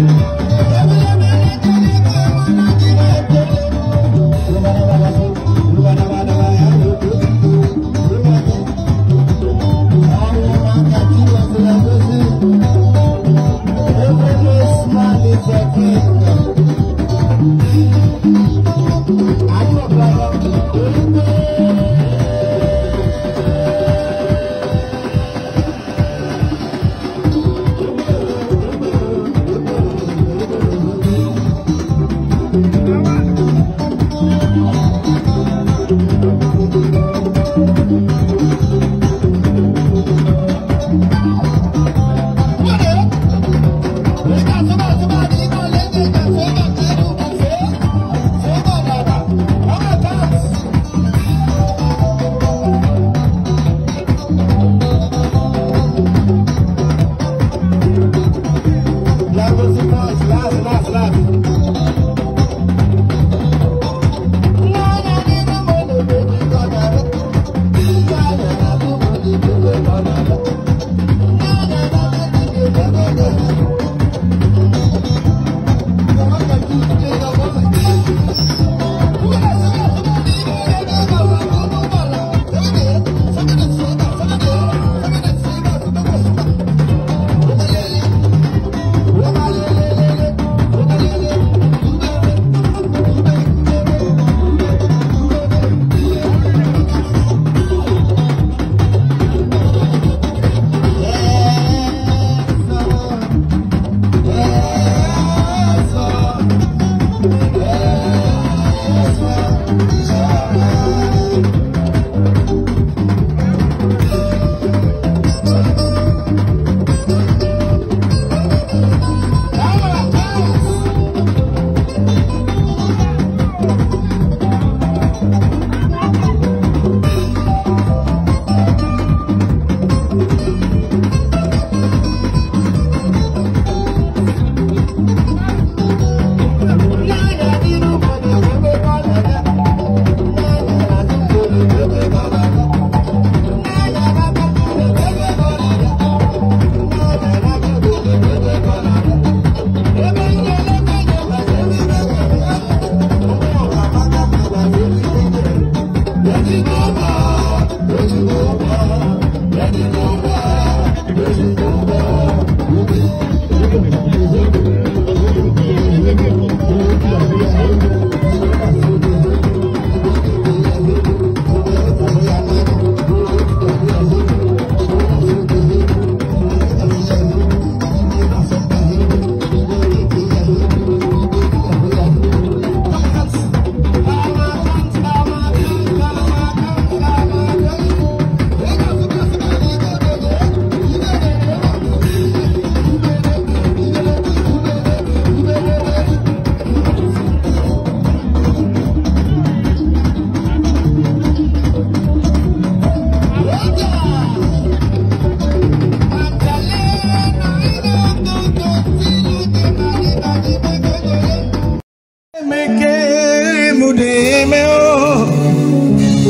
Música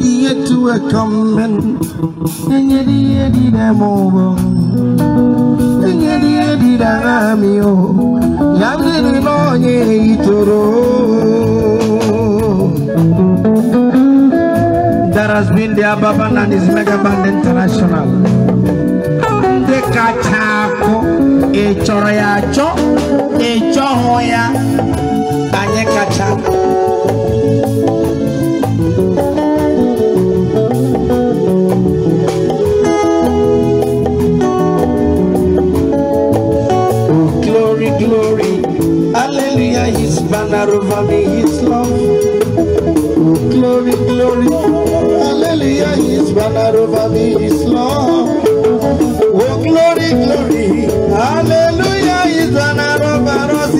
yedi etu ekommen Nyedi yedi demobo Nyedi yedi damio Yamini nonye itoro That has been the Ababan and his mega band international Dekachako Echoro ya cho Echoho ya Anyekacha glory. Hallelujah, his banner over me, his love. Glory, glory. Hallelujah, his banner over me, his love. Oh, glory, glory. Hallelujah, his banner over us.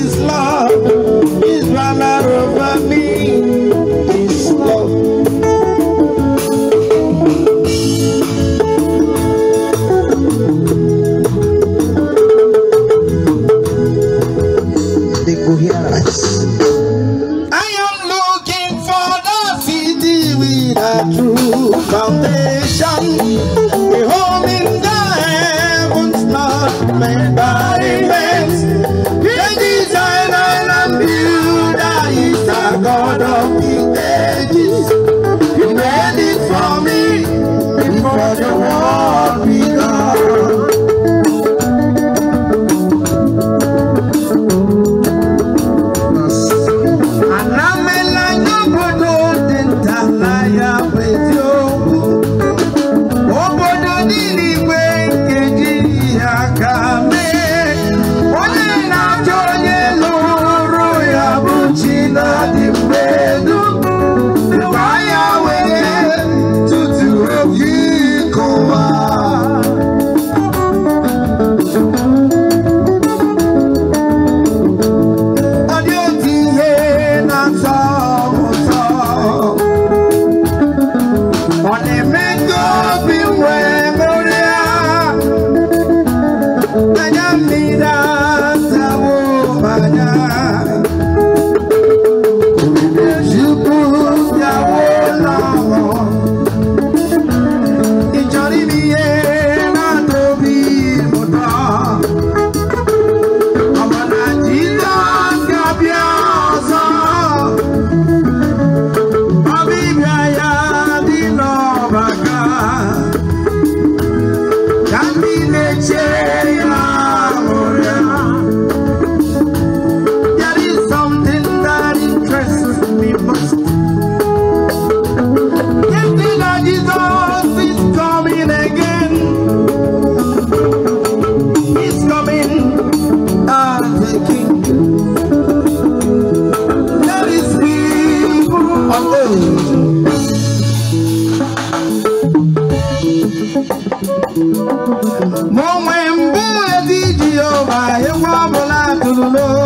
the true foundation. We're in the heavens not made by man's, the designer and builder is the God of the ages. He made it for me before the world. love.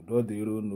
udo dịron